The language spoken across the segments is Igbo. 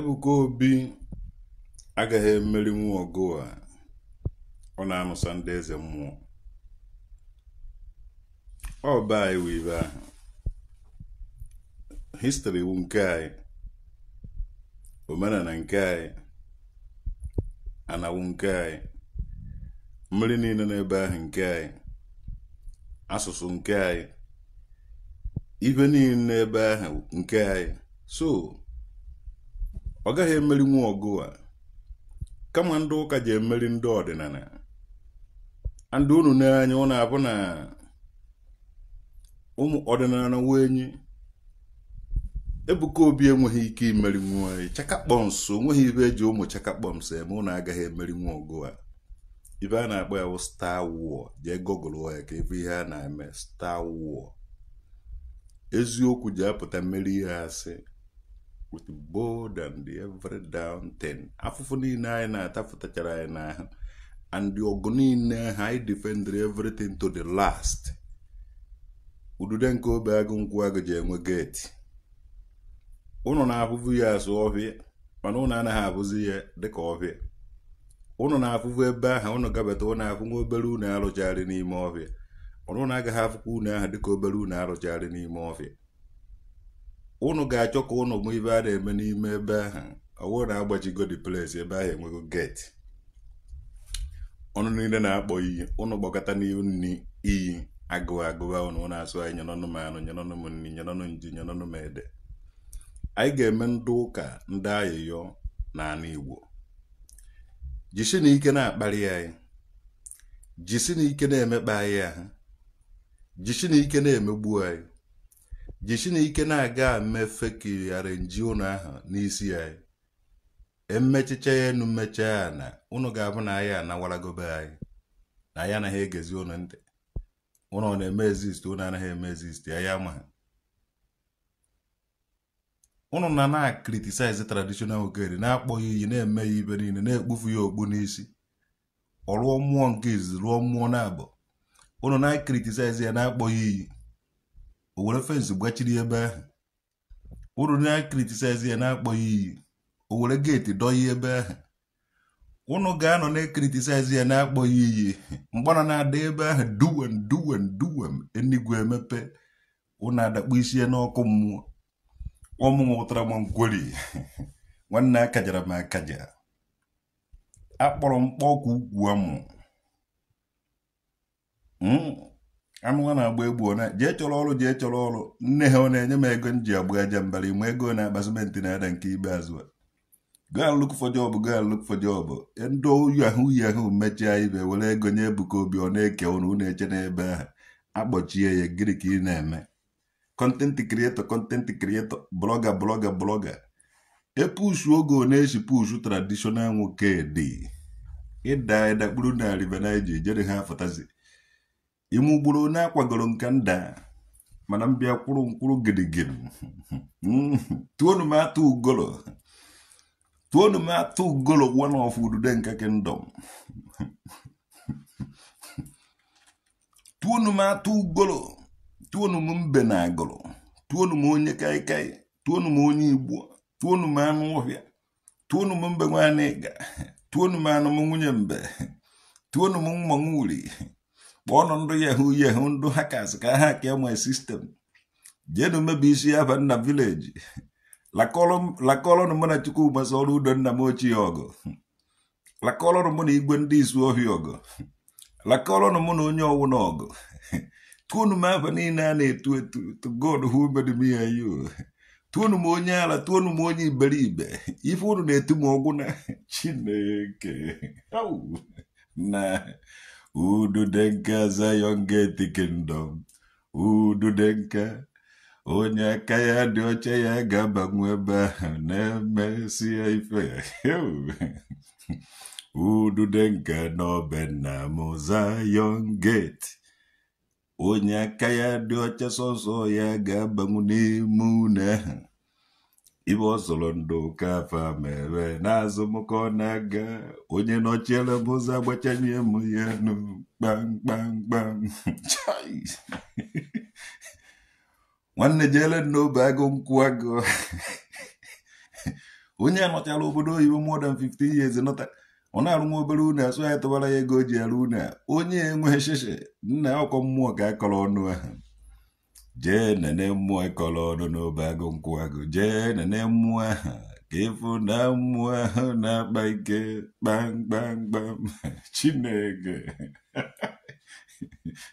Ebuka Obi agaghị nwa ọgụ a ọ na-anụsa ndị eze mmụọ ọ baa anyị ibe ahụ histori wu nke anyị omenala nke anyị anawu nke anyị mmiri niile n'ebe ahụ nke anyị asụsụ nke anyị ibe niile n'ebe ahụ nke anyị so ọ gaghị nwa ọgụ a kama ndị ụka ji emeri ndị ọdịnala ndị unu n'anya unu abụ na ụmụ ọdịnala na wenyi ebuka obi enweghị ike imerinwu anyị chakakpọms onweghị ibe eji ụmụ chakakpọms eme unu agaghị nwa ọgụ a ibe a na-akpọ ya bụ star war jee gogụlụ ya ka ebe ihe a na-eme star war eziokwu ji apụta mmeri ihe asị with bold and every down ten a fufuni naye na tafuta caraye naha and yogoni naha i defender everything to the last ududen ko be agun kuwaga je ngwe geti uno na afufu ya su ofi mana uno ana ha afuzi ya dika ofi uno na afufu ebe aha uno gabata uno afu ngwe obere uno alụchari n'ime ofi mana uno aga ha afuku uno aha dika obere uno alụchari n'ime ofi ụnụ ga-achọ ka ụnụ ma ibe a na-eme n'ime ebe ahụ ọwụrụ na agbajigo the place ebe ahụ enwego geti ọnụ niile na-akpọ iyi ụnụ gbakọta n'ihu nni iyi agụwa agụwa ụnụ na-asụ anyị nyenọnụ m anụ nyenọnụ m nni nyenọnụ nji nyenọnụ m ede anyị ga-eme ndị ụka ndị ayịyọ na anụ igbo jisi na ike na akpali anyị jisi na ike na-emekpa anyị ahụ jisi na ike na-emegbu anyị jichina ike na-aga mmefe kirighara nji ụnụ ahụ n'isi ya emechicha ya enu mmecha ya na ụnụ ga-abụ na ya anawaragobe anyị na anyị anaghị egezi ụnụ ntị ụnụ ọ na-eme ezist ụnụ anaghị eme ezist anyị ama ha ụnụ na na-akritisize traditional ogeri na-akpọghị iyi na-eme ya ibe niile na-ekpufu ya okpu n'isi ọ rụọ mmụọ nke izizi rụọ mmụọ na-abụ ụnụ na-akritisize ya na-akpọghị iyi E o were fensị gbachiri ebe ahụ ụrụ na-ekritisize ya na akpọghị iyi o were geeti ebe ahụ ụnụ ga-anọ na-ekritisize ya na akpọghị iyi mgbana na-ada ebe ahụ duwem duwem duwem enigwe emepe ụnụ adakpu isi ya n'ọkụ mmụọ ọmụ ụtara m nkweri nwanne akajara m akaja akpọrọ mkpọ ọkụ amụwa na-agba egbu ọ jee chọrọ ọrụ jee chọrọ ọrụ nne ha ọ na-enye m ego m ji agba aja mbara ịmụ ego na-akpazimenti na-ada nke ibe azụ go and look for job go and look for job ndị oyi ahụ uyi ahụ mechie ibe were ego nye Ebuka Obi ọ na-eke ụnụ ụnụ eche n'ebe ahụ akpọchie ya gịnị ka ị na-eme content creator content creator blogger blogger blogger epushu oge ọ na-eshi pushu traditional nwoke dị ịda ịdakpuru na rivenji jere ha afọtazi ime ugboro onye akwagoro nke nda mana m bịa kwụrụ mkpụrụ gidigidi tuonu m atụ ugolo tuonu m atụ ugolo one of udude nke kingdom tuonu m atụ ugolo tuonu m mbe na agụrụ tuonu m onye kaikai tuonu m onye igbo tuonu m anụ ọhịa tuonu m mbe nwanyị ịga tuonu m anụ m nwunye mbe tuonu m mmanwụ uri kpọọnụ ndụ yahoo yahoo ndụ hackers ka ha kee my sistem jeenu mebi isi ya ba nna vileji lakọlọnụ mụ na chukwumaso ọrụ udo nna m ochie ọgụ lakọlọnụ mụ na igwe ndị isu ohi ọgụ lakọlọnụ mụ na onye ọwụ ọgụ tụọnụ m afa niile a na-etu etu to God who made me and you tụọnụ m onye ala tụọnụ m onye iberibe ife unu na-etu m ọgwụ na chineke na ududenke Zion Gate Kingdom ududenke onye aka ya dị ọcha ya ga-abanwe ebe ahụ na-emesia ife ududenke n'obe nna onye aka ya dị ọcha sọsọ ya ga-abanwu n'ime une ahụ ibe ọsoro ndụ kafa mere n'azụ mụkọ na-aga onye nọchiere m ụzọ agbachanye m ya nu kpamkpamkpam nwanne jere n'obe agụ nkwụ agụ onye anọchala obodo oyibo more than 15 years nọta ọ na-arụ nwa obere une asụ ya tụbara ya ego o ji arụ une onye enweghị sheshe nna ọkọ mmụọ ka akọrọ ọnụ ahụ jee nene mmụọ ịkọrọ ọnụ n'obe agụ nkwụ agụ jee nene mmụọ aha ka ịfụ na mmụọ ahụ na-akpa ike kpamkpamkpam chineke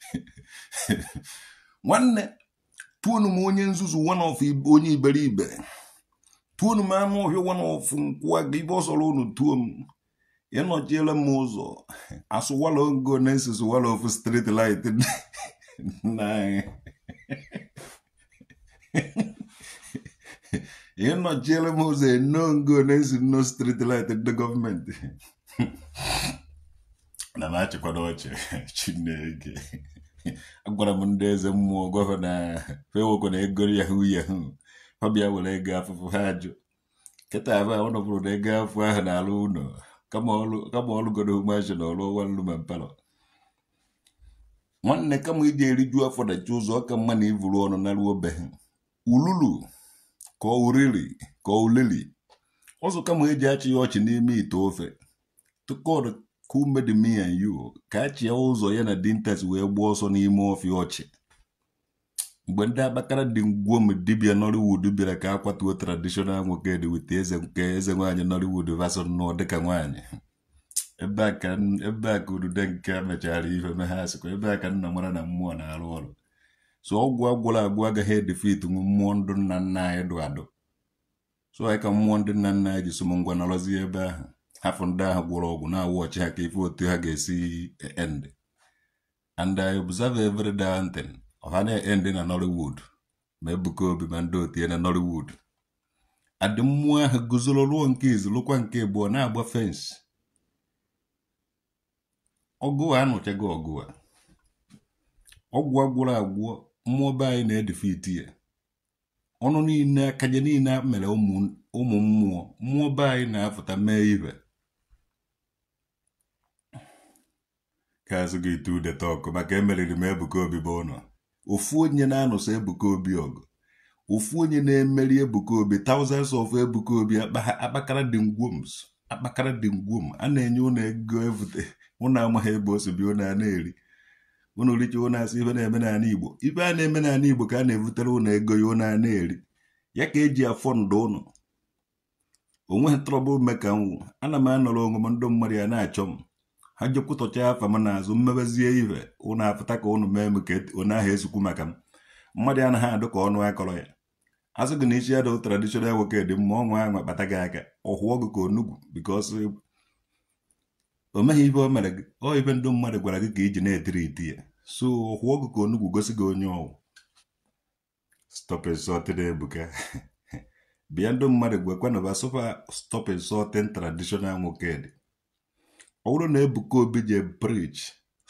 nwanne pụnụ m onye nzuzu wanof onye iberibe pụnụ m anụ ọhịa wanof nkwụ agụ ibe ọsọrọ unu tuo m ịnọchiela m ụzọ asụwala ogo na esosowala ofu light na anyị ị nọchiere m ụzọ eno ngo na-esi nno street light ndị gọọmenti na na-achịkwado ọchị chineke agwara m ndị eze mmụọ gọvanọ fewokwe na ego yahu yahu ọ bịa were ego afụfụ ha ajụ nkịta ahụ ahụ nọbụrụ na ego afụ ahụ na-alụ ụlọ kama ọlụgoro umeazị na ọrụ ọwa nlu ma mpalọ nwanne kama ịdị eriju afọ dachi ụzọ ọka mma na ivuru ọnụ na ruo be ululu ka oriri ka olili ụzọ kama eji achị ọchị n'ime ite ofe tukod kumed me an yu ka achịa ụzọ ya na dintas wee gbuo ọsọ n'ime ofe ọchị mgbe ndị abakara dị ngwuo m dibia nollywood bịara ka akwatuo traditional nwoke dị wit eze nke eze nwaanyị nollywood vason nụọ dịka nwaanyị ebe a ka odude nke mechara ife megha asịkwa ebe a ka nna mara na mmụọ na-arụ ọrụ so ọgwụ agwụrụ agwụ agaghị edefit nwe mmụọ ndụ nna nna anyị dụ adụ so anyị ka mmụọ ndị nna nna anyị ji som ngwa nọrọzi ebe ahụ hafụ ndị ahụ gwụrụ ọgwụ na awa ọchị ha ka ife otu ha ga-esi end and I observe every day thing ọha na-end na Nollywood ma Ebuka Obi ma ndị otie na Nollywood adị mmụọ ahụ guzoro ruo nke izu lụkwa nke abụọ na-agba fensị ọgụ a anụchago ọgụ a ọgwụ agwụrụ agwụ mmụọ be anyị na-edefiti ya ọnụ niile akaje niile mere ụmụ mmụọ mmụọ be anyị na-apụta mee ibe ka azụ gị tu udeta ọkụ maka emeriri m Ebuka Obi bụ ụlọ ofu onye na-anụso Ebuka Obi ọgụ ofu onye na-emeri Ebuka Obi thousands of Ebuka Obi akpakara dị ngwoms akpakara dị ngwum a na-enye ụnụ ego evute ụnụ amaghị ebe o si bi a na-eri ụnụ richa ụnụ asị ife na-eme n'ala Igbo ife a na-eme n'ala Igbo ka a na-evutere ụnụ ego ya ụnụ ana na-eri ya ka eji afọ ndụ ụnụ onweghị trọbụl meka nwụ ana m anọrọ onwe m ndị mmadụ ya na-achọ m ha jekwutọcha afa m n'azụ mmebezie ihe ụnụ apụta ka ụnụ mee m ka e, ụnụ ahụ esikwu maka m mmadụ anaghị adụ ka ọnụ akọrọ ya a sị gị na ichi adụ traditional nwoke dị mma ọnwa ya nwa kpata gị aka ọhụọ gị ka onugwu bikos o meghị ibe o mere gị ọ ibe ndị mmadụ gwara gị ka iji e na-etiri iti ya so ọhụọ gị ka onugwu gosi gị onye ọwụ stọpin sọtin ebuka bịa ndị mmadụ gwekwana ba sụpa stọpin sọtin traditional nwoke dị ọ bụrụ na ebuka obi je brij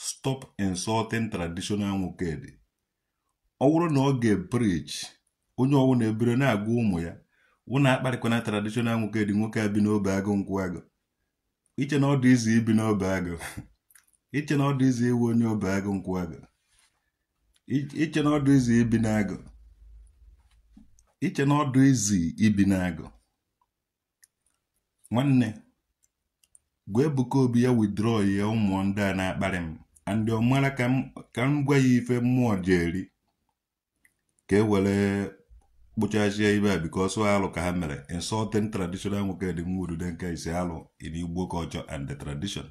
stop insulting traditional nwoke dị ọ bụrụ na ọ ga-ebrij onye ọwụ na-ebere na-agwa ụmụ ya wụ na-akparịkwana tradishọnal nwoke dị nwoke a bi n'obe agụ nkwụ agụ iche na ọ dị izi ibi n'obe agụ iche na ọ dị izi iwu onye obe agụ nkwụ agụ iche na ọ dị izi ibi n'agụ iche na ọ dị izi ibi n'agụ nwanne gwa Ebuka Obi ya withdraw ya ụmụ ndị a na-akparị m andị mara ka m gwa ya ife mmụọ ji eri ka e were kpụchazie ibe a because alụ ka ha mere insulting traditional nwoke dị nwodu nke ise alụ in Igbo culture and the tradition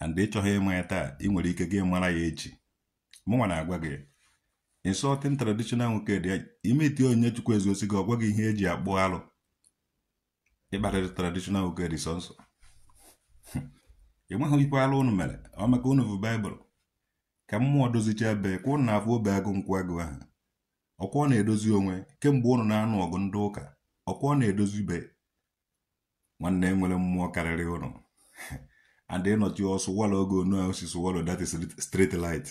and ịchọghị ịma ya taa ị nwere ike gị mara ya echi mụnwa na-agwa gị insulting traditional nwoke dị imeti onye chukwu ezuosi gị ọgwa gị ihe eji akpụ alụ ịkparịrị traditional nwoke dị sọnsọ ị nweghị ikwe alụ unu mere ọ maka unu bụ baịbụl ka mmụọ dozichaa bee ka na-afụ obe agụ nkwụ agụ ahụ ọkwa ọ na-edozi onwe kemgbe ụnụ na-anụ ọgụ ndị ụka ọkwa ọ na-edozi be nwanne nwere mmụọ karịrị ụnụ and ịnọchi ọsụ wala oge onu osisi walo that is straight light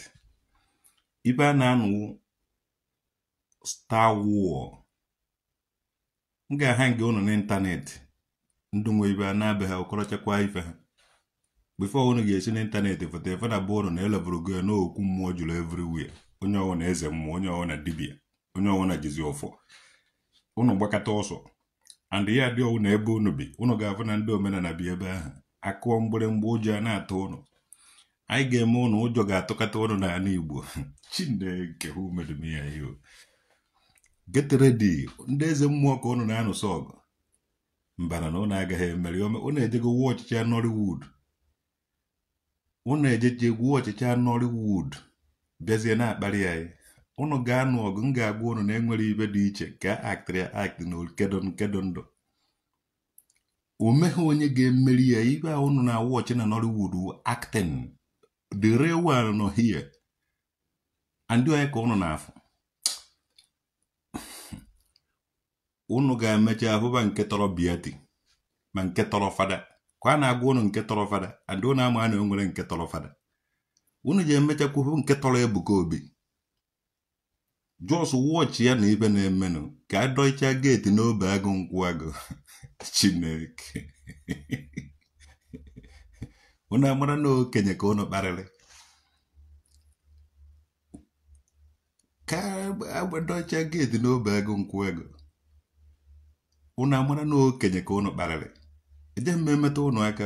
ibe a na-anụ star war m ga-aha nke ụnụ n'ịntanetị ndụ nwe ibe a na-abịa ha ọkọrọchakwa ife ha bifo ụnụ ga-esi n'ịntanetị foto efe na bụ ụnụ na elebụrụ go n'okwu mmụọ juru everywhere onye ọwụ na eze mmụọ onye ọwụ na dibia onye ọnwa na-ejizi ọfọ unu gbakọta ọsọ and ya dị na ebe unu bi unu ga-afụ na ndị omenala bi ebe ahụ akụọ mgbịrịmgba ụjọ a na atọ ụnụ anyị ga-eme ụnụ ụjọ ga-atụkata ụnụ n'ala Igbo chineke ha umedumya ihe get ndị eze mmụọ ka ụnụ na-anụsọ ọgụ mbana na ụnụ agaghị emeri ome ụnụ ejego wuo ọchịchị Nollywood ụnụ ejeche gwuo bịazie na-akparị anyị unu ga-anụ ọgụ m ga-agwa unu na enwere ibe dị iche ka aktịrị aktị na okedon kedon ndụ omeghe onye ga-emeri ya ibe a unu na wọchị na Nollywood acting the real one nọ here ndị onye ka unu na-afụ unu ga-emecha ahụba nke tọrọ biati ma nke tọrọ fada ka a na-agwa unu nke tọrọ fada andị unu ama na enwere nke tọrọ fada unu ji emechakwu nke tọrọ ebuka obi jos wọchị ya na ibe na-emenụ ka adọcha geeti n'obe agụ nkwụ agụ chineke unu amara na okenye ka unu kparịrị ka agbadocha geeti n'obe agụ nkwụ agụ unu amara na okenye ka unu kparịrị eje mme emeta aka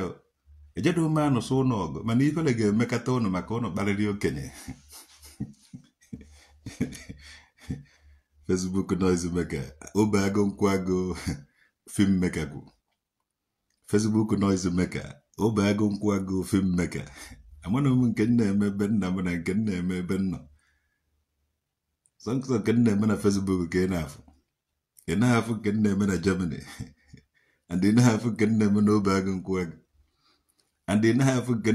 ejedo ume anụsụ ọgụ mana ifere ga-emekata unu maka unu kparịrị okenye Facebook noise maker obe agụ nkwago film maker kwụ Facebook noise maker obe agụ nkwago film maker amana m nke nna eme ebe nna m na nke nna eme ebe nna sọnsọ nke nna eme na Facebook ka ị na-afụ ị na-afụ nke nna eme na Germany and ị na-afụ nke nna eme na obe agụ nkwago and ị na-afụ nke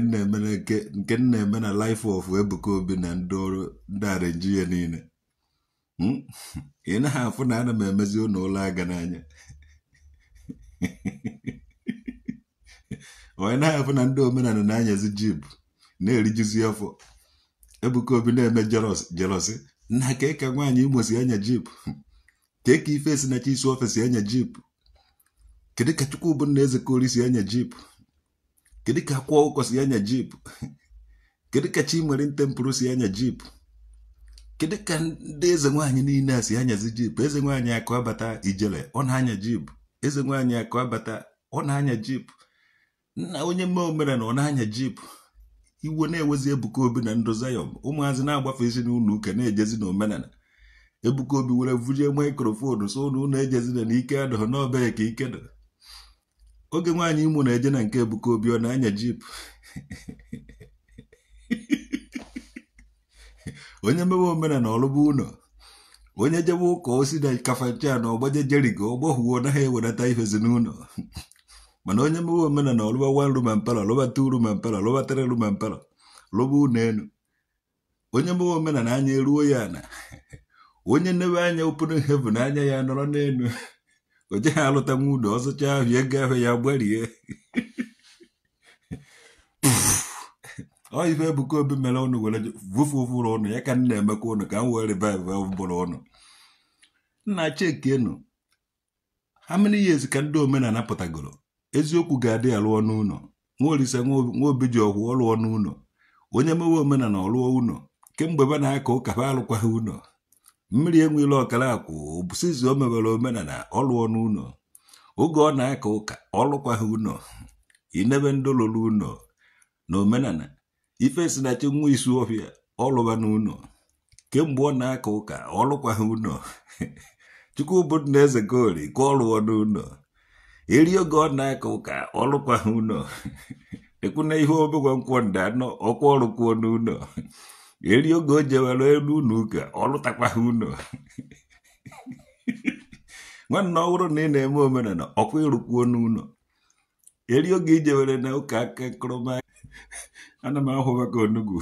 nna eme na life of Ebuka Obi na ndị ọrụ ndị arenji ya niile Hmm? ị na-afụ na ana m emezi ụlọ ụlọ aga n'anya onye na-afụ na ndị omenala na-anyazi jib na-erijuzi afọ ebuka obi na-eme jelọsi nna ka ịka nwaanyị imo si anya jip ka ịka ife si na isi ofe si anya jip kedu ka Chukwubu na eze kori si anya jip kedu ka akwa ụkọ si anya jip kedu ka chi nwere ntempụrụ si anya jip kedu ka ndị eze nwaanyị niile a si anyazi jip eze nwaanyị akụabata abata ijele ọ na-anya jip eze nwaanyị akụ abata ọ na-anya jip nna onye mme omere na ọ na-anya jip iwe na-ewezi ebuka obi na ndụ zayọm ụmụazị na-agbafe isi n'ụlọ uke na-ejezi na omenala ebuka obi were vujie maikrofonu so ụlọ ejezi na ike adọghọ n'ọbee ka ike dọ oge nwaanyị imụ na-eje na nke ebuka obi ọ na-anya jip onye mewe omenala ọlụba ụlọ onye jebe ụka osi na kafachaa na ọgbaje jerigo ọgbọhụwo naghị ewenata ifezi n'ụlọ mana onye mewe omenana ọlụba wan ruma mpela lụbata uru ma mpelọ lụbatara ru ma lụba ụlọ elu onye mewe omenala anya eruo ya na onye nnewe anya opunu na anya ya nọrọ n'elu o jeghị alụtanwu ụlọ ọzụcha ahụ ego ahụ ya gbarie ọ ife Ebuka Obi mere ụnụ were vufe ụfụrụ ụnụ ya ka nna emeka ụnụ ka m were riveve ụbụrụ ụnụ nna chekenu ha many years ka ndị omenala pụtagoro eziokwu ga-adị ya lụọ n'ụlọ nwaolise nwaobi ji ọgwụ ọ lụọ n'ụlọ onye mewe omenala ọ ụnọ kemgbe be na-aka ụka ha alụkwaghị ụnọ. mmiri enweela ọkara akwụ bụsizi o mewere omenala ọlụọ lụọ n'ụlọ oge ọ na-aka ụka ọlụkwaghị ụnọ inebe ndị lụrụ ụlọ na omenala ife si na chi nwa isu ọfịa ọlụba na kemgbe ọ na-aka ụka ọlụkwaghị ụlọ chukwu bụ na eze gori ka ọ n'ụlọ eri oge ọ na-aka ụka ọlụkwaghị ụlọ ekwuna ihe obegwa nkwọ nda anọ ọkwa ọrụkwuo n'ụlọ eri oge o jewere elu ụlọ ụka ọlụtakwaghị ụlọ nwanne ọhụrụ na ị na-eme omenala ọkwa ịrụkwuo n'ụlọ eri oge ijewere na ụka aka nkụrụma ana m ahụba ka onugbu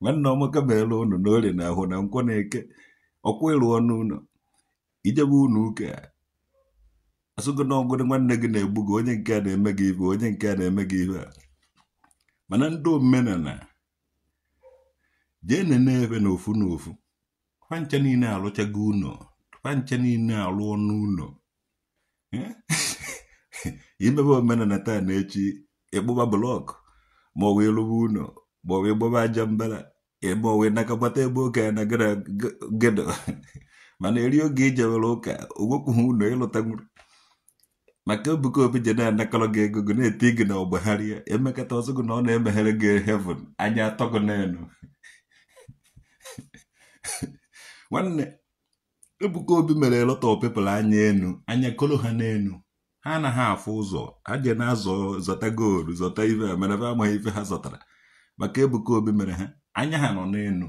nwanne ọmaka meela ụnụ na na ahụ na nkwọ na-eke ọkwa ịrụ ọnụ ụlọ ijebe ụnụ ụka asụgo na ọgụrụ nwanne gị na-egbu gị onye nke a na-eme gị ibe onye nke a na-eme gị ibe mana ndị omenala jee n'enebe na ofu na ofu fancha niile alụchago ụlọ fancha niile alụ ọnụ ụlọ imebe omenala taa na echi ịkpụba blọkụ ma ọ wee rụwa ụlọ ma ọ aja mbara ma ọ wee ebe oge ya na gedo mana eri oge ijewere ụka ogwekwughị ụlọ ịlụta nwere maka Ebuka Obi je na-anakọrọ gị ego gị na-eti gị na ọgbagharịa emekata ọzọ gị na ọ na-emeghere gị heaven anya atọ gị n'elu nwanne Ebuka Obi mere lọtọ pepụl anya enu anya kolo ha n'elu ha anaghị afụ ụzọ ha je na-azọ zọta goolu zọta ive ha mere amaghị ife ha zọtara maka Ebuka Obi mere ha anya ha nọ n'elu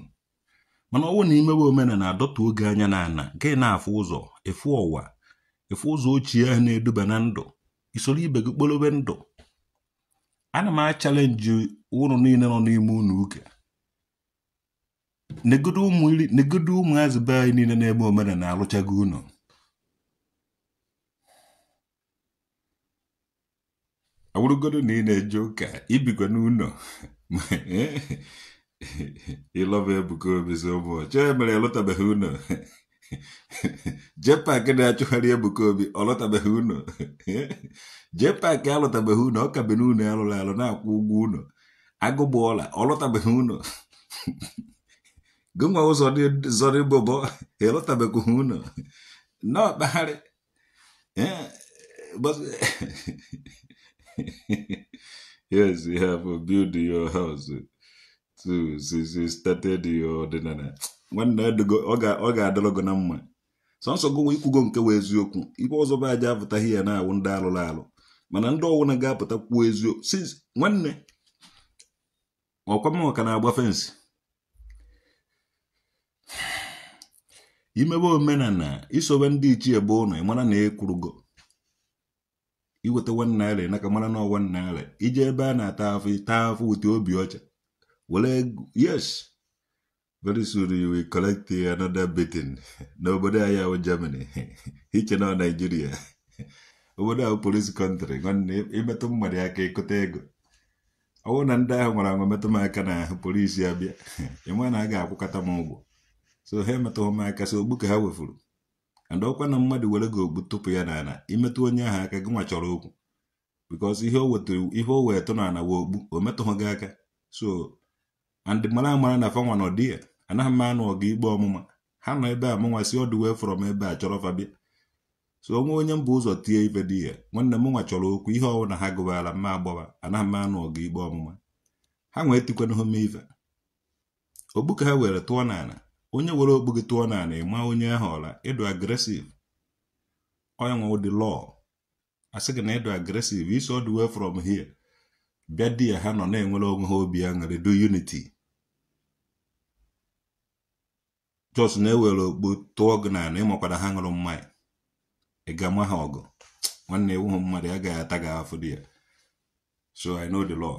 mana ọnwụ na imewe omena na-adọta oge anya na nke na-afụ ụzọ efu ọwa efu ụzọ ochie ha na-eduba na ndụ isoro ibe gị kpolobe ndụ ana m achalenji ụlọ niile nọ n'ime ụlọ ụka negodo ụmụazị be anyị niile na-eme omena na-alụchago unu. awụrụgodo na ị na-eje ụka ibikwa n'ụlọ ịlọba Ebuka Obi si ụbọchị e mere ịlọtabeghị ụlọ jee paakị na-achụgharị Ebuka Obi ọ lọtabeghị ụlọ jee alọtabeghị ụlọ ọ ka be n'ụlọ alụrụ alụ na-akwụ ụgwọ ụlọ agụgba ọla ọ lọtabeghị ụlọ gụnwa ụzọ bụbọ ịlọtabeghị ụlọ na ọkpagharị yes, you have a build your house too since you started your ọdịnala nwanne ọ ga-adịrọ gị na mma sọnsọ gụnwa ikwugo nke wee eziokwu ibe ọzọ bụ aja apụtaghị ya na-awụ ndị alụrụ alụ mana ndị ọwụna ga-apụta kwuo eziokwu since nwanne ọkwama ọka na-agba fensị imebe omenala isobe ndị ichie bụ ụnụ ị mara na ekwurugo iweta one naira naka mara na one naira ije ebe a na-ata afọ taa afọ ute obi ọcha were yes very soon you will collect another beating n'obodo ahịa ahụ Germany iche na naijiria obodo ahụ polisi kọntrị nwanne imetụ mmadụ aka ịkụta ego ọ bụrụ na ndị ahụ nwere anwa metụ m aka na polisi abịa ịma na a ga-akwụkọta m ụgwọ so ha emetụghị m aka so ogbu ka ha wefuru ọkwa na mmadụ were gị ogbu tụpụ ya n'ala imetụ onye ahụ aka gị nwa chọrọ okwu bikọs ihe o wetụrụ ihe o wee tụ n'ala wee okpu o metụghị gị aka so andị mara amara na fanwa na ọdị ya anaghị m anụ ọga igbe ọmụma ha nọ ebe a mụnwa si ọdụ wee fọrọ m ebe a chọrọ fabia so onwe onye mba ụzọ tie ife di ya nwanne m nwa chọrọ okwu ihe ọwụ na ha gụbara mma agbọba anaghị m anụ ọga igbe ọmụma ha nwee tikwanahụ m ife ogbu ka ha were tụọ n'ala onye were okpu gị tụọ n'ala ịma onye ahụ ọla ịdụ agresiv onye nwe ụdị lọọ sị gị na ịdụ agresiv iso the way from hie bịa di ya ha nọ na-enwere onwe ha obi aṅụrị do uniti jos na-ewere okpu tụọ gị n'ala ịmakwara ha ṅụrụ mmanya ị ga-ama ha ọgụ nwanne ewu mmadụ gaghị ata gị afọ di ya so i know the law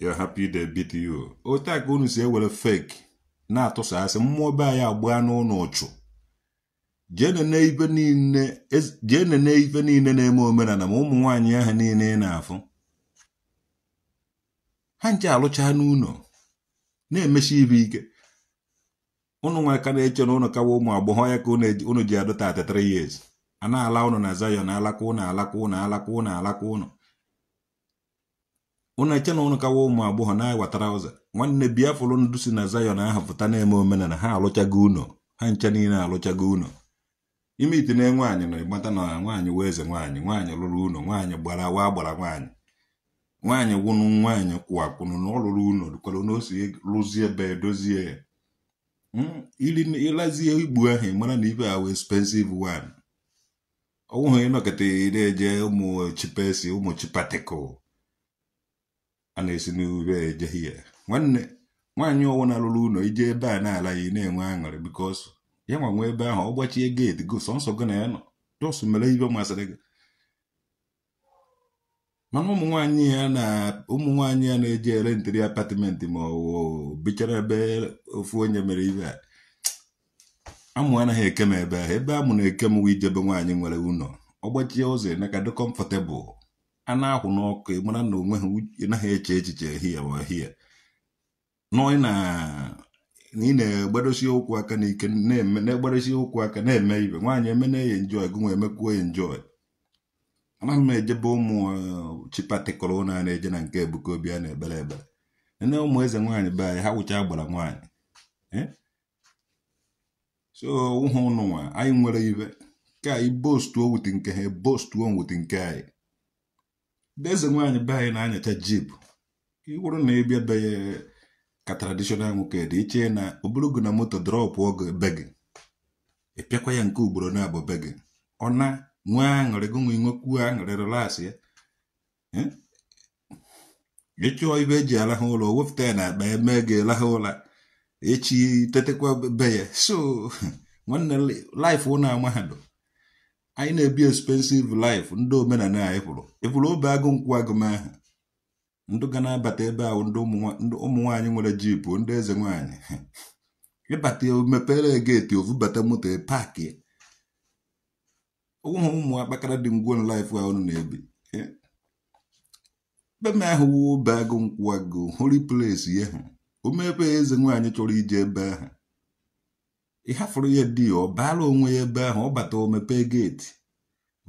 you're happy they beat you otu a ka unu si ewere fake na-atụsasị mmụọ be anyị agbaa n'ụlọ ụchụ jee nene ife niile na-eme omenala ma ụmụ nwaanyị ahụ niile ị na-afụ ha nche alụcha n'ụlọ na-emechi ibe ike ụnụ nwa ka na-eche na ụnụ kawa ụmụ agbọghọ ya ka ụnụ ji adota 33 years a na-ala ụnụ na Zion alakwa ụnụ alakwa ụnụ alakwa ụnụ alakwa ụnụ ụnụ eche na ụnụ kawa ụmụ agbọghọ na-agwatara ụzọ nwanne biafụlụ ndụ si na Zion ahụ pụta na-eme omenala ha alụchago ụnọ ha nche niile alụchago ụnọ ime ite na nwaanyị na ịgbata na nwaanyị wee eze nwaanyị nwaanyị lụrụ ụnọ nwaanyị gbara wa gbara nwaanyị nwaanyị gwụnụ nwaanyị kwụwakwụnụ na ọlụrụ lụrụ ụnọ dụkwara na ose lụzie ebe dozie ya hmm, ịlazie igbu ahụ ị mara na ibe ahụ expensive one ọ nwụghị ịnọkịta na-eje ụmụ chipesi ụmụ chipatikụl a na-esi n'ube eje hie nwanne nwaanyị ọwụ na-alụrụ ụlọ ije ebe a na-ala ya na-enwe aṅụrị bikos ya nwa nwe ebe ahụ ọ gbachie geeti go sọnsọ gị na ya nọ jọsụ mere ibe masịrị gị mana ụmụ nwaanyị ya na ụmụ nwaanyị ya na-eje ere ntiri apatịmentị ma ọ bichara ebe ofu onye mere ibe a amụ anaghị eke m ebe ahụ ebe amụ na eke m ijebe nwaanyị nwere ụlọ ọ gbachie ụzọ emeka dị kọmfọtebụl a na-akwụ n'ọkụ mara na onwe ha naghị eche echiche ehihie wa ehihie na ị na-egbadosi ụkwụ aka n'ike na-egbadosi ụkwụ aka na-eme ibe nwaanyị eme na-enye njọ gụnwe emekwuo ya njọ anaghị m ejebe ụmụ uh, chipatịkọrọ na na-eje na nke ebuka obi a na-ebere ebere nne ụmụ eze nwaanyị be anyị ha wụcha gbara nwaanyị eh? so ụhụ ụnụnwa anyị nwere ibe ka anyị bostuo wuti nke ha e bostuo nwuti nke anyị eze nwaanyị be anyị na-anyacha jib wụrụ na ịbịa be ya ka tradishọnal nwoke dị iche na oburugo na moto drọpụ oge be gị ịpịakwa ya nke ugboro na-abụ be gị ọ na nwee aṅụrị gonwe nwekwuo aṅụrị relasị ya ịchụọ ibe eji alahụ ụlọ wepụta ya na akpa eme gị elahụ ụla echi tetekwa be ya so nwanne laif ụna mahadum anyị na-ebi expensive life ndị omenala anyị kwụrụ ịkwụrụ obe agụ nkwụ agụm ndụ ga na-abata ebe ahụ ndị ụmụ nwere jipụ ndị eze nwaanyị ịbata mepere geeti ovubata moto paakị ụmụ ụmụ akpakara dị ngwon life ahụ na-ebi be m ahụ wuo be agụ nkwụ agụ hori plesi ya ha omepe eze nwaanyị chọrọ ije ebe ahụ ịhafụrụ ya di ọ baala onwe ya ebe ahụ ọ bata omepe geti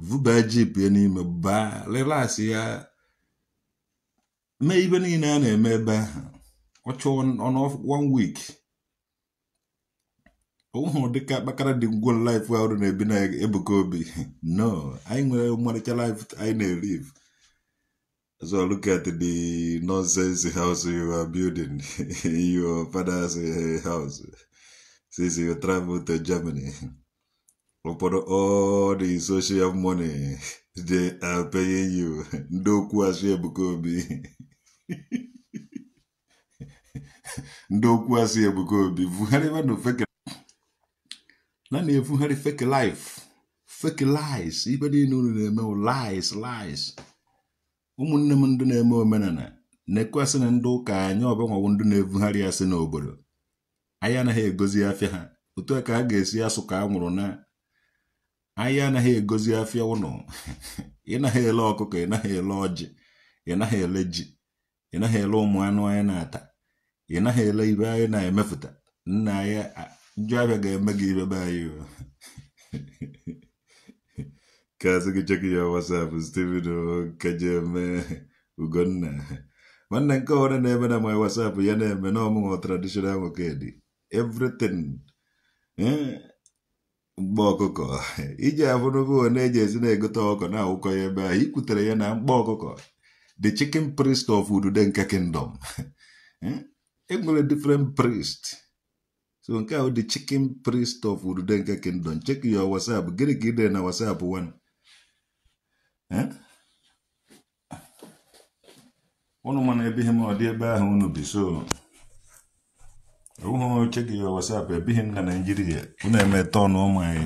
vụba jip ya n'ime baa relax ya mee ibe niile a na-eme ebe ahụ ọ chọọ one week ụhụ dịka kpakara dị ngwon life ahụ na-ebi na ebuka obi no anyị nwere ọmarịcha life anyị na-erive So look at the nonsense house you are building, your father's house. since you travel to Germany. Upon all the social money they are paying you, ndokwu asị Ebuka Obi. ndokwu asị Ebuka Obi, vugharịba na fake na na-evugharị fake life, fake lies, ibe niile unu na-eme lies lies. ụmụnne m ndị na-eme omenala na-ekwesị na ndị ụka anyị ọbanwawo ndị na-evugharị asị n'obodo anyị anaghị egozi afịa ha otu a ka a ga-esi asụ ka a nwụrụ na anyị anaghị egozi afịa ụnọ ị naghị ele ọkụkọ ị naghị ele ọjị ị naghị ele ji ị naghị ele ụmụ anụ anyị na-ata ị naghị ele ibe anyị na-emepụta nna anyị njọ ga-eme gị ibe be anyị ka asị gị chekị ya wasapụ site kejeme ugonna nwanne nke ọhụrụ na-eme na my wasapụ ya na-eme na ọmụmụ tradishonal nwokedi everything hmm? mkpa ọkụkọ iji abụrụgo na-eji ezi na-egote ọkụ na ya ebe a ikwutere ya na mkpa ọkụkọ the chicken priest of udude nke kingdom hmm? e nwere different priest so nke ahụ the chicken priest of udude nke kingdom check your whatsapp gịnị ka ide na whatsapp one ụnụ hmm? mana ebe m ọ dị ebe ahụ unu bi so uhụ cheki ya WhatsApp ebighị m na Naịjirịa unu eme ọnụ ụmụ anyị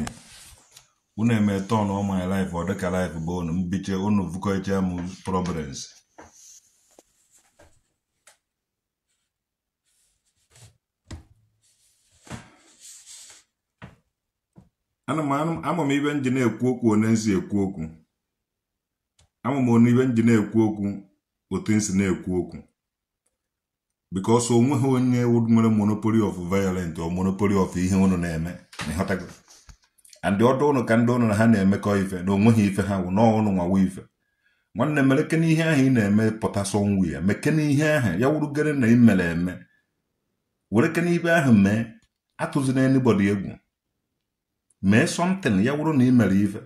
unu eme ọnụ ụmụ anyị laif ọ dịka laif bụ unu mbiche unu vụkọcha m problems ama m ibe nji na-ekwu okwu one nsi ekwu okwu ama m onu ibe nji na-ekwu okwu otu nsi na-ekwu okwu because onweghị onye nwere monopoli of violent or monopoli of ihe unu na-eme and ọdụ ụnụ ka ndị ụnụ na ha na-emekọ ife na onweghị ife ha wụ n'ọnụ nwawa ife nwanne mere kene ihe ahụ ị na-eme pụta sọnwu ya mekene ihe ahụ ya wurugere na ị eme were kene ibe ahụ mee atụzina anybody egwu mee something ya wụrụ na imere ife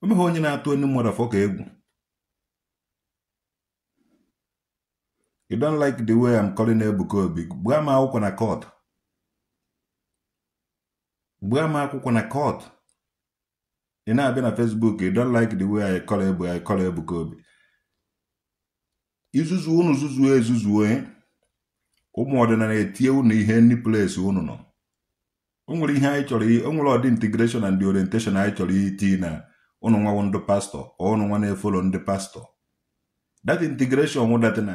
omeghị meghị onye na-atụ onye mmadụ afọ ka egwu you don't like the way I'm calling Ebuka Obi gbaa m akwụkwọ na court gbaa m akwụkwọ na court ị na-abịa na Facebook you don't like the way I call Ebu I call Ebuka Obi izuzu unu zuzuo ezuzuo e, ụmụ ọdịnala etie unu ihe ndị place unu nọ o nwere ihe anyị chọrọ o nwere ọdị integration and orientation anyị chọrọ iti na unu nwawo ndị pastọ ọ unu nwa na-efolo ndị pastọ Dat integration wụdatana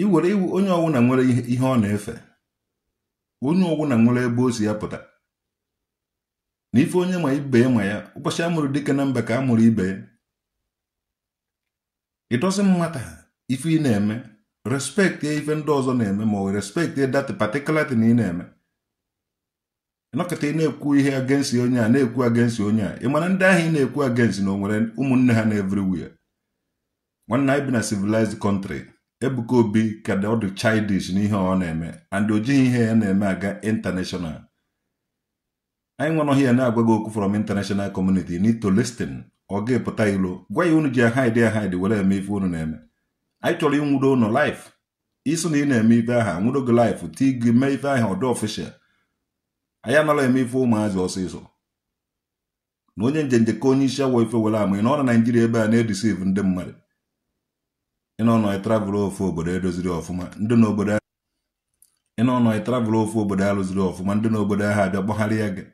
iwere iwu onye na nwere ihe ọ na-efe onye ọwụna nwere ebe o ya pụta na ife onye ma ibe ya ma ya ụbọchị amụrụ dike na mba ka amụrụ ibe ya ịdọzi mmata ife ị na-eme respekti ife ndị ọzọ na-eme ma ọ respekti dat patikular na ị na-eme nọkọta ị na-ekwu ihe agensi onye a na-ekwu agensi onye a ị mana ndị ahụ ị na-ekwu agensi na o nwere ụmụnne ha na everywhere nwanne anyị bi na civilized country Ebuka Obi ka ọ dị childish n'ihe ọ na-eme and o jighị ihe ya na-eme aga international anyị nwanọghị ya na-agwa gị okwu from international community need to listen ọ ga-epụta ilo gwa ya unu ji ahide ahide were eme ife unu na-eme anyị chọrọ ịnwudo ụnụ life isi na ị na-eme ife aha nwudo gị life ti gị mee ife aha ọdụ official anyị anala eme ife ụmụazị ọsịsọ na onye njenje ka onye isi awọ ife were ama ị ọ na Naijiria ebe a na-edisiv ndị mmadụ ịnọnọ ịtravụl ofu obodo edoziri ọfụma ndị na obodo ịnọnọ ịtravụl ofu obodo arụziri ọfụma ndị na obodo ahụ abịa kpọgharịa gị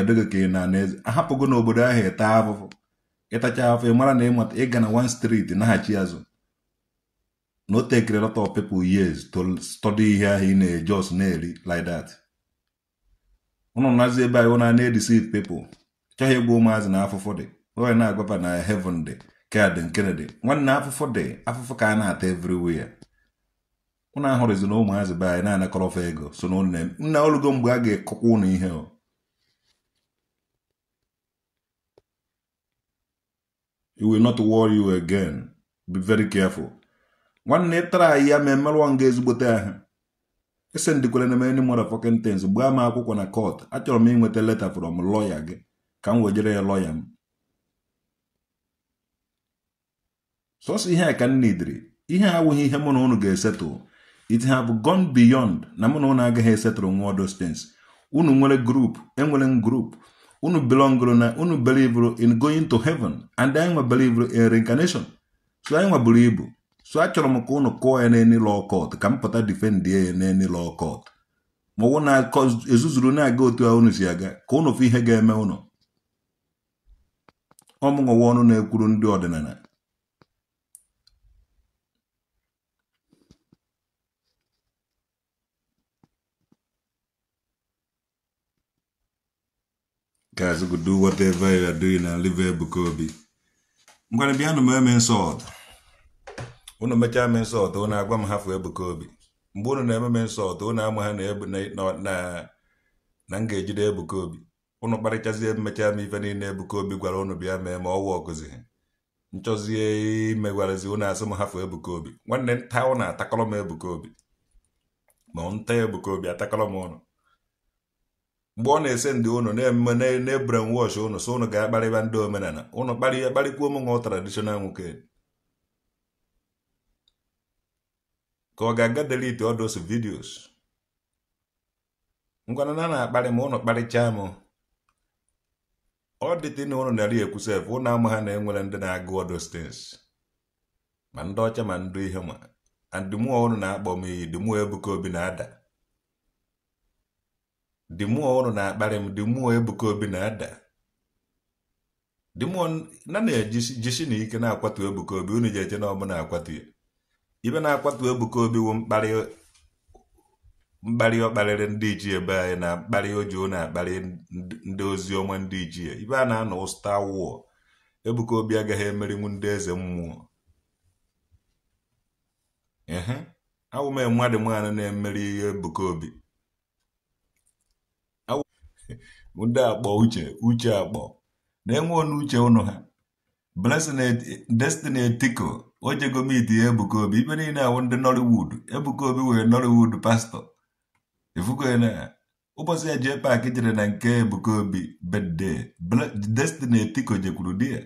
ọdịgịka ị na n'eze ahapụgo n'obodo obodo ahụ ete afụfụ ịtacha afọ mara na ịmata ịga na one street naghachi azụ na o tekere lot of people years to study ihe ahụ ị na-ejos na-eri like that ụnụ nazi ebe anyị na na-edisive people chọghị ịgwa ụmụazị na afụfụ dị onye na-agwapa na heaven dị Kaadị Kennedy nwanne afụfụ dị afụfụ ka a na-ata everywhere ụnụ ahụrụzi na ụmụazị be anyị na-anakọrọ ọfa ego so na nne nna olugo mgbe a ga-ekọkwa ụnụ ihe o you will not worry you again be very careful nwanne tara anyị ya ma emerụọ nga ezigbote ahụ ese ndikwere na many motherfucking things gbaa m akwụkwọ na court achọrọ m inweta leta from lawyer gị ka m wejere ya lawyer m sọsọ ihe a ka nna idiri ihe a awụghị ihe mụ na ụnụ ga-esetụ it bụ gone beyond na mụ na ụnụ agaghị esetụrụ nwa odos stens unu nwere group enwere m unu belongụrụ na unu belivụrụ in going to heaven and anyị nwe belivụrụ in reincarnation so anyị buru ibu so achọrọ m ka ụnụ kụọ ya n'eni lọ court ka m pụta defendie ya n'eni law court ma ọwụ na ezuzuru na-aga otu a unu si aga ka ụnụ fụ ihe ga-eme ụnụ ọmụnwụwa ọnụ na-ekwuru ndị ọdịnala guys go do whatever you are doing and leave Obi m gwara bịa nụ m eme mechaa m agwa m hafụ Ebuka Obi mgbe unu na-eme me nsọt unu ama ha na m ga-ejide Ebuka Obi ụnụ kparịchazie mmecha m ife niile Ebuka Obi gwara ụnụ bịa mee ma nchọzie imegwarazi unu asị m hafụ Ebuka Obi nwanne nta atakọrọ m Obi ma nta Ebuka Obi atakọrọ m ụnụ mgbe ọ na-ese ndị ụnụ na-eme na-ebren wọsh ụnụ so ụnụ ga-akparịba ndị omenala unu kparịa kparịkwuo m nwa tradishonal nwoke ka ọ ga-aga delete ọdụs vidiyos. ngwana na na-akparị ma unu kparịchaa m ọ dịtị na ụnụ narị ekwusef ụnụ ama ha na-enwere ndị na-agụ all ma ndị ọcha ma ndụ ihe ma andịmụọ ụnụ na-akpọ m iyi dịmụọ Ebuka Obi na-ada dị mmụọ ụnụ na-akparị m dị mmụọ Obi na-ada dị mmụọ na na-ejisi na ike na-akwatu Ebuka Obi unu ji eje na ọbụ akwatu ya ibe na-akwatu Ebuka Obi wụ mkparị ọ kparịrị ndị ichie ebe anyị na mkparị ojuo na-akparị ndị ozi ọma ndị ichie ibe a na-anọ Star War Ebuka Obi agaghị emerinwu ndị eze mmụọ ee awụme dị mmadụ na-emeri Ebuka Obi ndị akpọ uche uche akpọ na-enwe onu uche ụnụ ha blessing destiny etiko ojegomiti ebuka obi ibe niile awụ ndị nollywood ebuka obi wee nollywood pastọ ifukona ụbọchị ya jee paaki jere na nke ebukobi bede destiny etiko jekwuru di ya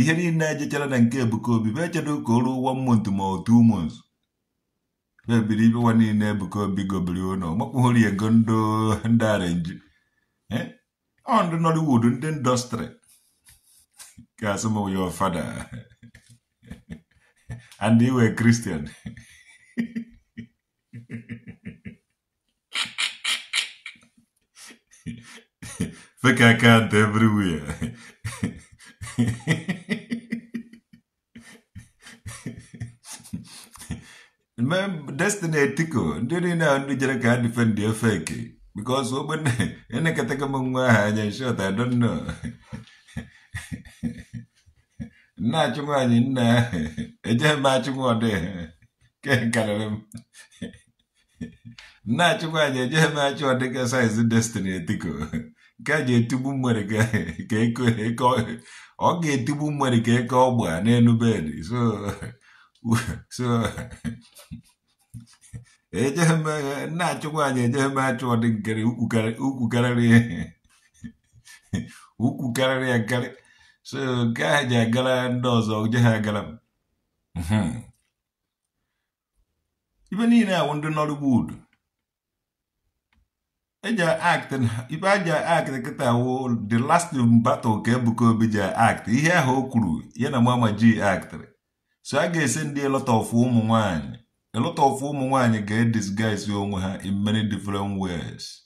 ihe niile ejechara na nke ebuka obi be echedo ka o ruo one ma otu ebiri ibe nwa niile ebuka obi gobiri ụlọ makwuhori ego ndị arenji Eh? On the Nollywood in the industry. Kasimo, your father. and you were Christian. Fake account everywhere. Remember, destiny Tico. Didn't know how to defend your fake. because open ene m mungwa anyị shot i don't know na chungwa ni na eje ma chungwa de ke kalalem na chungwa ni eje ma chungwa de ka size destiny tiko ka je tubu mwere ka ka eko eko ọ ga-etigbu mmiri ka eke ọgba n'elu bed ejeghi m nna achụ nwaanyị ha agara m ibe niile awụ ndị ibe aja wụ the last battle ka Ebuka Obi ji ihe ahụ o kwuru ya na mama ji aktịrị so a ga-ese ndị lọta ofu ụmụ nwanyị a lot of ụmụ nwanyị ga disguise onwe ha in many different ways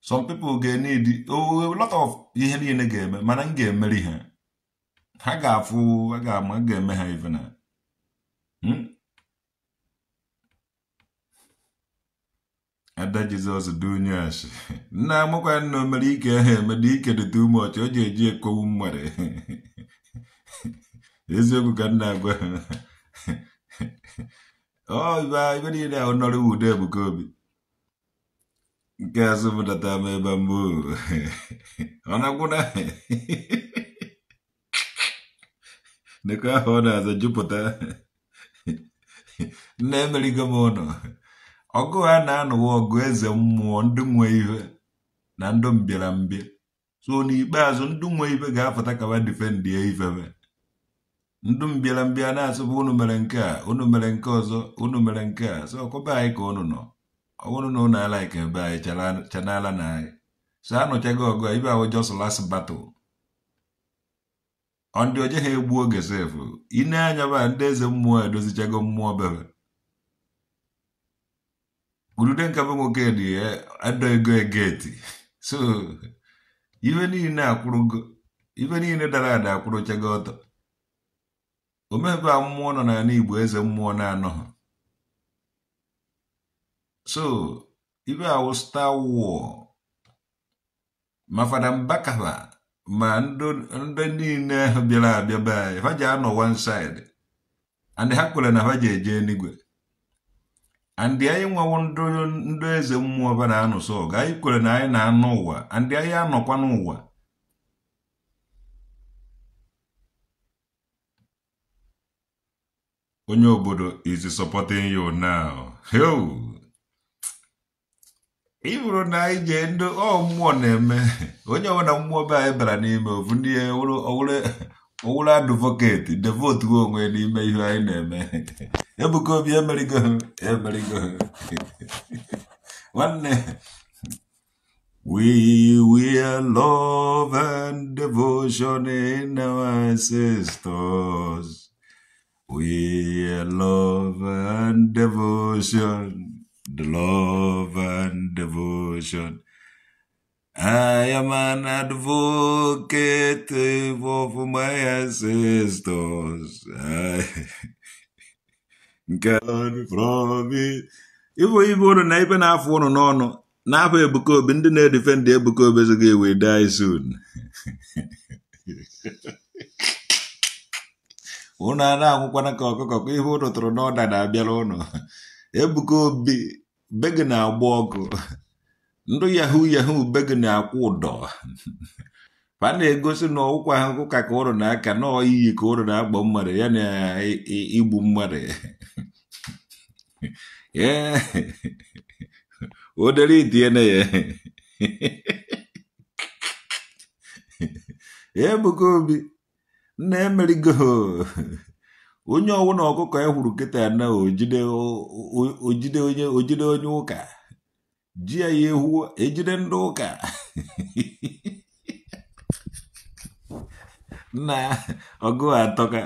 some people ga-need a lot of ihe niile ga-eme mana m ga-emeri ha ha ga-afụ ha ga-eme ha even na hmm? ada jizọs dị onye nna amụkwa nna mere ike ha dị ike dị too much o ji eji ekowu mmere eziokwu ka nna agwa ha ọ ibe niile ahụ nọrọ ude Ebuka Obi nke azụ mụtata m ebe mbụ ọ na-agwụna nekọ ahụ ọ na-aza jupụta nna emerigo m ụlọ ọgụ ha na-anụwa ọgụ eze mmụọ ndị nwe ihe na mbịara mbịarambịa so n'ikpeazụ ndị nwe ibe ga apụta kaba difendie ifebe ndụ m bịara mbịa na-asụ bụ unu mere nke a unu mere nke ọzọ unu mere nke a so ọkwa be anyị ka unu nọ ọwụrụ na unu ala ike be anyị chanala na anyị so anụchago ọgụ ibe ahụ just last battle ndị oje ha egbu oge sefu ine anya ba ndị eze mmụọ edozichago mmụọ bebe gurude nke bụ nwoke dị adọghịgo e, egeti so ife niile akwụrụgo ife niile dara ada akwụrụchago ọtọ omebe a mmụọ nọ n'ala Igbo eze mmụọ na-anọghị so ibe awụ star war ma fada Mbakaba ma ndị niile ahụ bịara abịa be anyị ha ji anọ one side and ha kwere na ha ji eje eluigwe andị anyị nwawo ndị eze mmụọ ba na-anụ so ga anyị kwere na anyị na-anụ ụwa andị anyị anọkwa n'ụwa onye obodo is supporting you now ịbụrụ na anyị nye ndị ọ mmụọ na-eme onye ọbụla mmụọ be anyị bara n'ime ofu ndị owere advocate devote onwe n'ime ihe anyị na-eme Ebuka Obi emerigo emerigo nwanne We will love and devotion in our ancestors. We love and devotion, the love and devotion. I am an advocate of my ancestors. I God from it. Ibo Igbo nọ na ibe na-afụ ụnụ n'ọnụ n'afọ Ebuka Obi ndị defend. Ebuka Obi ezoghị we die soon. unu a na-anwụkwana ka ọkụkọ ka ihe unu tụrụ n'ọda na-abịara ụnụ ebuka obi be na-agba ọkụ ndụ yahu yahu be na-akwụ ụdọ fa na-egosi na ọwụkwa ahụ ka ka ụrụ na-aka na iyi ka ụrụ na-agba mmadụ ya na igbu mmadụ odere itiene ya ebuka obi na emerigo onye ọwụ na ọkụkọ e hụrụ nkịta ya na ojide onye ojide onye ụka ji ya ya ehu ejide ndị ụka na ọgụ atọka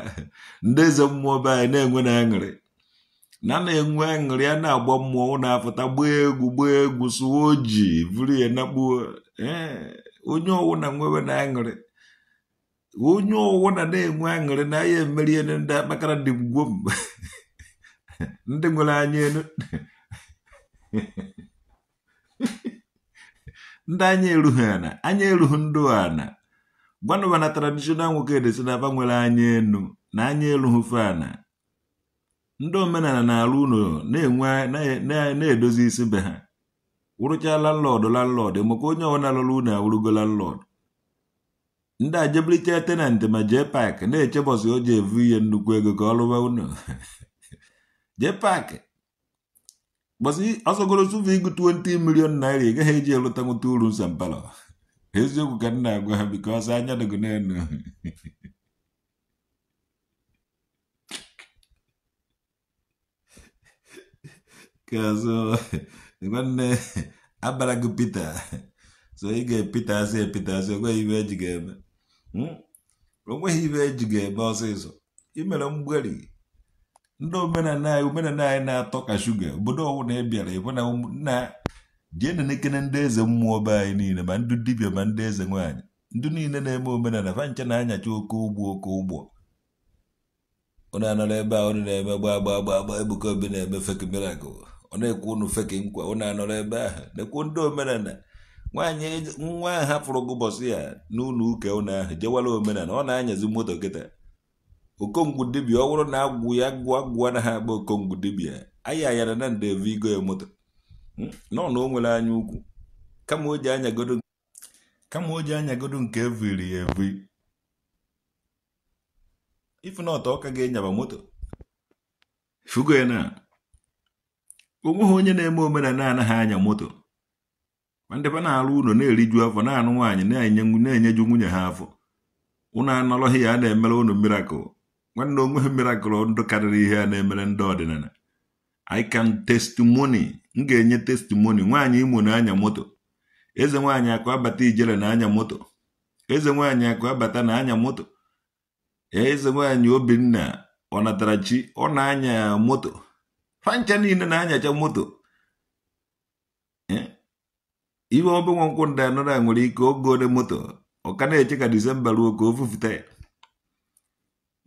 ndị eze mmụọ be anyị na-enwe na aṅụrị na na-enwe aṅụrị a na-agba mmụọ na-apụta gbaa egwu gbaa egwu sụwa oji vụrụ ya na Ee, onye ọwụ na nwewe na aṅụrị onye ọwụwa na-enwe aṅụrị na ya emerie ndị akpakara dị mgbo ndị nwere anya elu ndị anya erughị ana anya erughị ndụ ana gwanụba na tradishonal nwoke edesi na aba nwere anya enu na anya erughị fana ndị omenala na-arụ ụlọ na-edozi isi be ha wụrụcha lọdụ landlord maka onye ọbụla lụrụ ụlọ awụrụgo landlord ndị ajebliche tenant ma jee paaki na-eche oji evu ihe nnukwu ego ka ọ lụwa unu jee paaki bọsị ọsọgoro sụva igụ 20 milion naira ị gaghị eji elụta nwụta uru nsọmpalọ eziokwu ka nna agwa ha biko ọsọ anya dịgo n'elu kazụ nwanne abara gị pita so ị ga-epita asị epita asị o nweghị eji ga-eme Hmm? o nweghị ibe eji ga-eme ọsịsọ imere mgberi ndị omenala anyị na-atọ ka shuga obodo ọwụna ị bịara ịbụ na nna dienenekene ndị eze mmụọ be anyị niile ma ndị Dibia ma ndị eze nwaanyị ndị niile na-eme omenala fancha na-anyacha oke ụgbọ oke ụgbọ ụnụ anọrọ ebe a ụnụ na-eme gba gba gba gbaa Ebuka Obi na-eme fek mirakụl ọ na-ekwu ụnụ fek nkwa ụnụ anọrọ ebe ahụ na-ekwu ndị omenala nwaanyị e nwa ahụ hapụrụ gụbọsị ya n'ụlọ ụka ụnụ ahụ jewara omenala ọ na-anyazi moto kịta okongwu dibia ọ bụrụ na agwụ ya gụọ gụọ na ha agba okongwu dibia anyị ayara na ndebe igo ya moto hmm? nọ na o nwere anya ukwu kama o ji anyagodo kama o ji anyagodo nke eviri ya eviri ifu na ọtọ ọka ga-enyaba moto fugo ya na onweghị onye na-eme omenala anaghị anya moto ma ndebe na-alụ ụlọ na-eriju afọ na-anụ nwaanyị na-enye enyeju nwunye ha afọ ụnụ anọrọghị ya a na-emere ụnụ mirakụl nwanne onwe ha mirakụl ndụ karịrị ihe a na-emere ndị ọdịnala I can testimony m ga-enye testimoni nwaanyị imo na-anya moto eze nwaanyị akụ abata ijele na-anya moto eze nwaanyị akụ abata na-anya moto eze nwaanyị obinna ọ natara chi ọ na-anya moto fancha niile na-anyacha moto eh? iwe ọbụ nwa nkwụ ndị anọrọ a nwere ike ogo ole moto ọka na-eche ka disemba ruo ka o fufute ya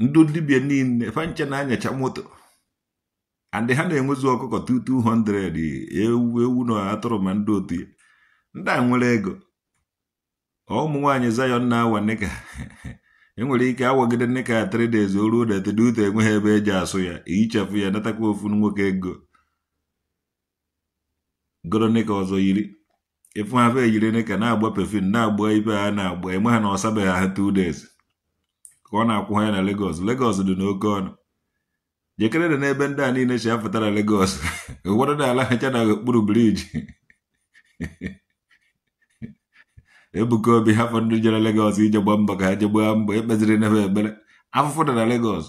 ndị dibia niile fanche na-anyacha moto andị ha na enwezi ọkụkọ 200 ewu ewu na atụrụ ma ndị otu ya ndị a nwere ego ụmụ nwaanyị zayon na-awa nịka enwere ike awagide nịka three oruo o ruo detedute enweghị ebe eji asụ ya ihichapụ e ya natakwa ofu nwoke ego goro nịka ọzọ yiri ifu eyiri ejiri ka na-agba pefin na-agba ibe ha na-agba enwe ha na ọsabeghị ha two ka ọ na-akwụ ha ya na legos legos dị n'oke ọnụ jekere dị n'ebe ndị a niile chi afụtara legos ụfọdụ na-ala na okpuru briji Ebuka Obi hafọ ndị jere Lagos ije gba mbọ ka ha je mbọ ekpeziri n'ebe ekpere afụfụ dị na legos.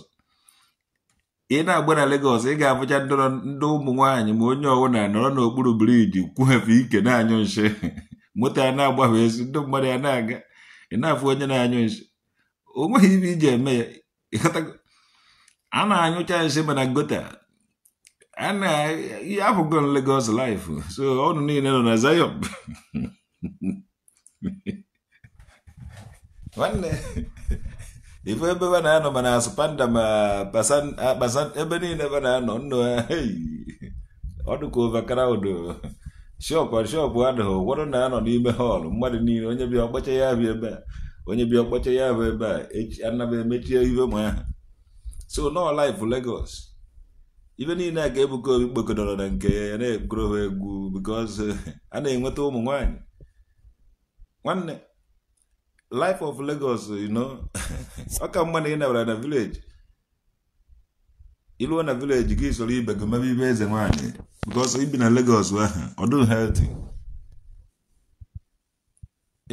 ị na-agba na Lagos ị ga-abụcha ndị ụmụ nwaanyị ma onye na anọrọ n'okpuru briji kwuhefe ike na-anyụ nshi moto a na-agbafe ezi ndị mmadụ ya na-aga ị na-afụ onye na-anyụ nshi o nweghị ibe iji eme ya a na-anyụcha nshi mana gota afụgo Lagos life so ọnụ niile nọ na Zion nwanne ife ebe ebe na-anọ mana asụ panda ma ebe niile ebe na-anọ nnụ ọdụka overcrowd shọpụ shọpụ adịghị ụfọdụ na-anọ n'ime họọlụ mmadụ niile onye bịa ọkpọcha ya bụ ebe a onye bịa ọkpọcha ya bụ ebe a anaba emechie ife ma so nọ laif legos ibe niile a ga-ebuka obi kpokọdọrọ na nke ya na-egwuru ha egwu because eh, a na-enweta ụmụ nwanyị nwanne life of Lagos you know ọ ka mma na ị na village iluo na village gị soro ibe gị mebe ibe eze nwaanyị because ibi na Lagos ahụ ọ healthy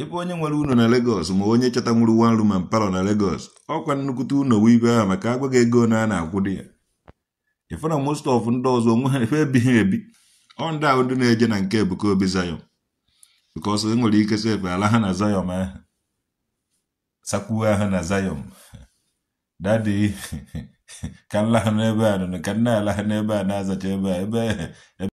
ebe onye nwere uno na Lagos ma onye chọta nwuru one room and parlour na Lagos ọkwa nnukwute uno wee ibe ahụ maka agwaghị ego na a na-akwụ di ya ife na most of ndị ọzọ onwe ha ife ebighị ebi ọ ndị na-eje na nke Ebuka Obi Zion because e nwere ike efe ala ha na Zion aha. sakwuo hana na dadi kan ka nla n'ebe a nụnụ ka nna lahana ebe a na-azacha ebe a ebe